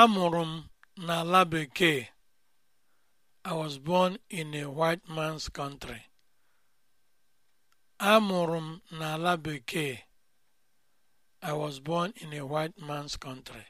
Amụrụ m n'ala bekee. I was born in a white man's country. m n'ala bekee. I was born in a white man's country.